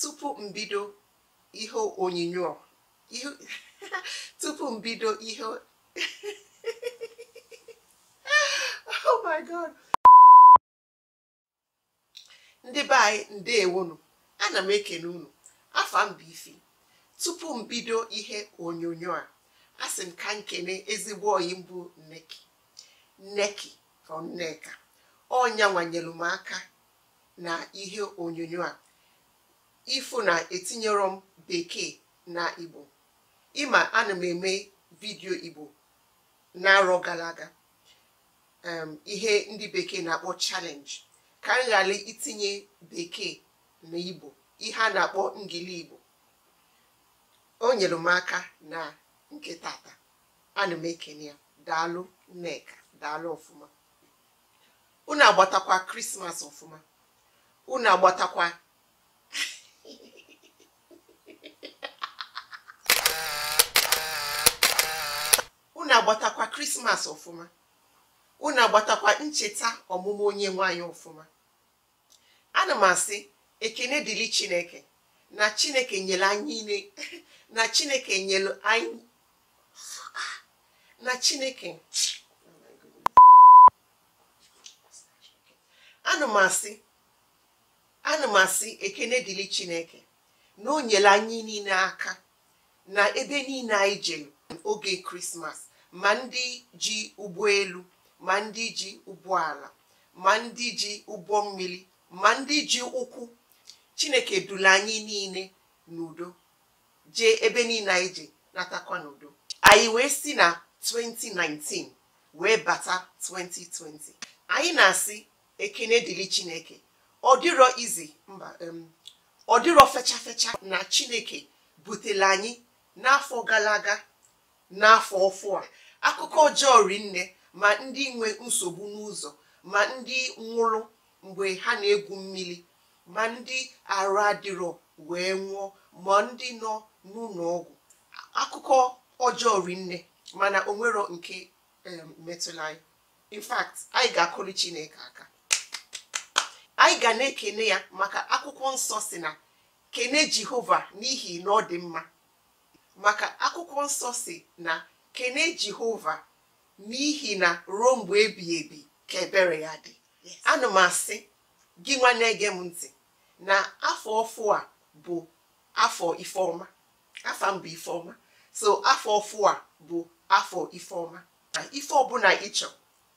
tupu mbido ihe onyinyo tupu mbido ihe oh my god ndị be anyị ndewonu ana m ekene unu afa m ifi tupu m bido ihe onyonyo a sị m ka nkene ezigbo oyi mbụ nneki nneki from nneka m aka na ihe onyonyo a Ifu na etinyere m bekee na igbo ịma ana m eme vidio igbo na-arọ gara aga ihe ndị bekee na-akpọ challenge ka m ghara itinye bekee na igbo ihe a na-akpọ ngili igbo o nyere m aka na nke tata ana m ekene ya daalụ nneka daalụ ọfụma unu agbatakwa krismas ọfụma unu agbatakwa unu agbatakwa krismas ọfụma unu agbatakwa ncheta ọmụmụ onye nwanyị ọfụma ana m asị ekene dịrị chineke na chineke nyere anyị na niile aka na ebe niile anyị jere oge krismas ma ndị ji ụgbọ elu ma ndị ji ụgbọala ma ndị ji ụgbọ mmiri ma ndị ji ụkwụ chineke dula anyị niile n'udo jee ebe niile anyị ji natakwa n'udo anyị wee si na 2019 wee bata 2020 anyị na-asị ekene dịrị chineke ọ dịrọ izi mba ọ dịrọ fecha fecha na chineke butere anyị n'afọ gara aga n'afọ ọfụ a akụkọ ọjọọ rinne ma ndị nwe nsogbu n'ụzọ ma ndị nwụrụ mgbe ha na-egwu mmiri ma ndị arụ adịrọ wee nwụọ ma ndị nọ n'ụlọ ọgwụ akụkọ ọjọọ rinne mana onwero nke metụla anyị in fact anyị ga-akụrụ Chineke aka anyị ga na-ekene ya maka akwụkwọ nsọ si na kene Jehova n'ihi na ọ dị mma maka akwụkwọ nsọ si na kene jehova n'ihi na ruo mgbe ebi ebi ka ebere ya dị anụ m asị gị nwanne ege m ntị na afọ ọfụ a bụ afọ ifeọma afọ m bụ ifeọma so afọ ọfụ a bụ afọ ifeọma na ife ọbụla ịchọ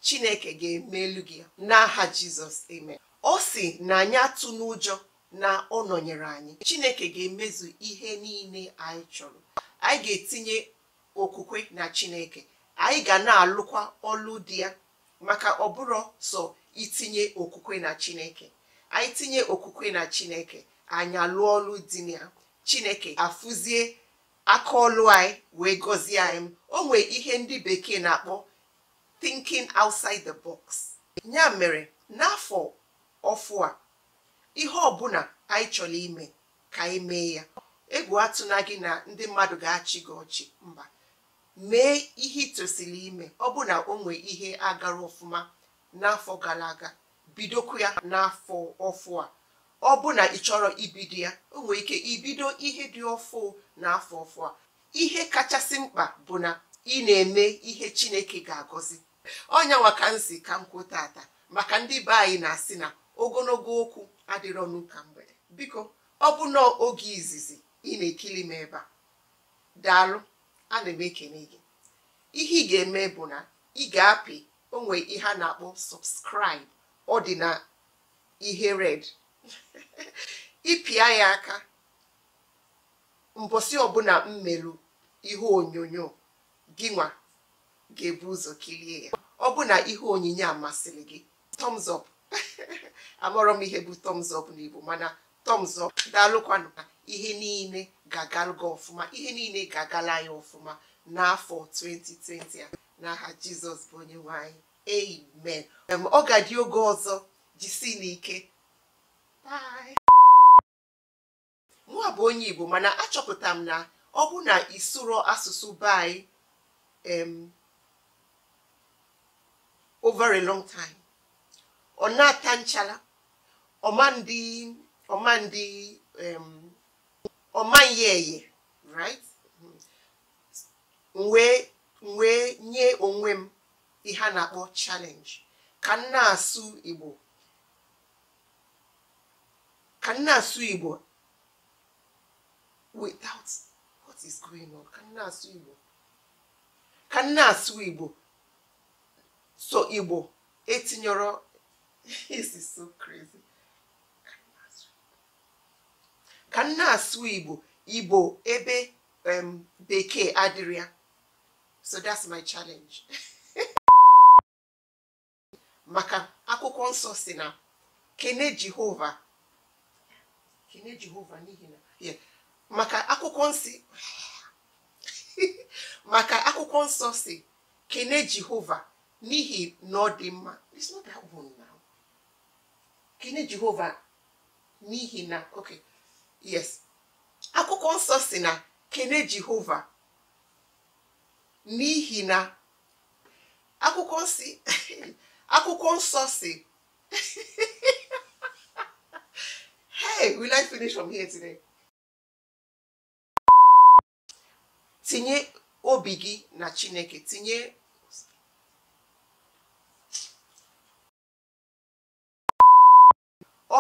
chineke ga emelu gị n'aha jizọs eme. ọ si na anyị atụ n'ụjọ na ọ nọnyere anyị chineke ga-emezu ihe niile anyị chọrọ anyị ga-etinye okwukwe na chineke anyị ga na-alụkwa ọlụ di ya maka ọ bụrụ sọ itinye okwukwe na chineke anyị tinye okwukwe na chineke anyị alụọ ọlụ di ya chineke afụzie aka ọlụ anyị wee gọzie anyị o nwee ihe ndị bekee na-akpọ thinking outside the box ya mere n'afọ ọfụ a ihe ọbụla anyị chọrọ ime ka anyị mee ya egwu atụna gị na ndị mmadụ ga-achị gị ọchị mba mee ihe ịtosili ime ọ bụ na o nwee ihe agara ọfụma n'afọ gara aga bidokwu ya n'afọ ọfụ a ọ bụ na ị chọrọ ibido ya o nwee ike ibido ihe dị ọfụ n'afọ ọfụ a ihe kachasị mkpa bụ na ị na-eme ihe chineke ga-agọzi ọnyanwa ka m ka m kwuo tata maka ndị be anyị na-asị na ogologo okwu adịrọ n'ụka mgbede biko ọ bụ oge izizi ị na-ekili m ebe a daalụ ana eme ekene gị ihe ị ga-eme bụ na ị ga-apị onwe ihe a na-akpọ subscribe ọ dị na ihe red ịpịa ya aka mbọsị ọbụla mmerụ ihe onyonyo gị nwa ga-ebu ụzọ kirie ya ọ bụ na ihe onyinye amasịrị gị thumbs up m ihe bụ thumbs up n'Igbo mana thumbs up daalụkwanụ ihe niile ga ọfụma ihe niile ga-agala ya ọfụma n'afọ 2020 a n'aha jizọs bụ onye nwanyị anyị amen ọ ga-adị oge ọzọ jisi n'ike nwa bụ onye igbo mana achọpụtara m na ọ bụ na isuro asụsụ be anyị over a long time ọ na-ata nchala ndị ọ maghị eye right wee nye onwe m ihe a na-akpọ challenge ka nna asụ Igbo ka nna asụ Igbo without what is going on ka nna asụ Igbo ka nna asụ Igbo so Igbo etinyọrọ this so crazy ka m asụ igbo igbo ebe bekee adịrịa so that's my challenge maka akwụkwọ nsọ si na kene jehova kene jehova n'ihi na maka akwụkwọ nsị maka akwụkwọ nsọ si kene jehova n'ihi na ọ dị mma it's not that one now kene jehova n'ihi na okay yes akwụkwọ nsọ si na kene jehova n'ihi na akwụkwọ si akwụkwọ nsọ si hey will I finish from here today tinye obi gị na chineke tinye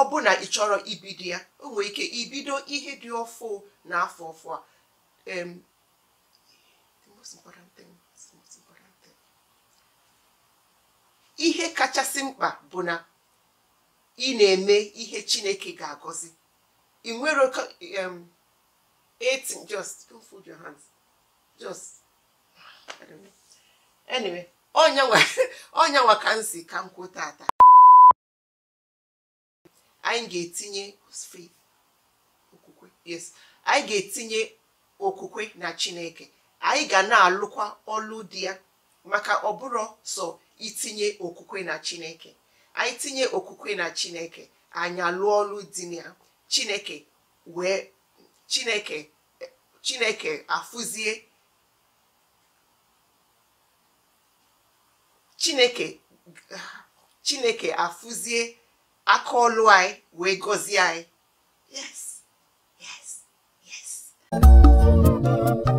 ọ bụ na ị chọrọ ibido ya o nwere ike ibido ihe dị ọfụ na afọ ọfụ a ihe kachasị mkpa bụ na ị na-eme ihe Chineke ga-agọzi ị nwere etin just don't your just anyway ka ka m kwuo tata anyị ga-etinye okwukwe na chineke anyị ga na-alụkwa ọlụ dị ya maka bụrụ sọ itinye okwukwe na chineke anyị tinye okwukwe na chineke anyị alụọ ọlụ dị ya chineke wee chineke chineke afụzie chineke chineke afụzie akọlụ we go see I. yes yes yes